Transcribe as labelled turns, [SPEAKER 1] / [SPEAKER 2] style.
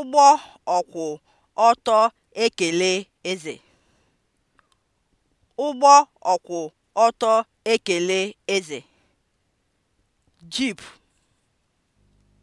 [SPEAKER 1] ụgbọ ọkwụ ọtọ ekele eze. ụgbọ ọkwụ ọtọ ekele eze.
[SPEAKER 2] jeep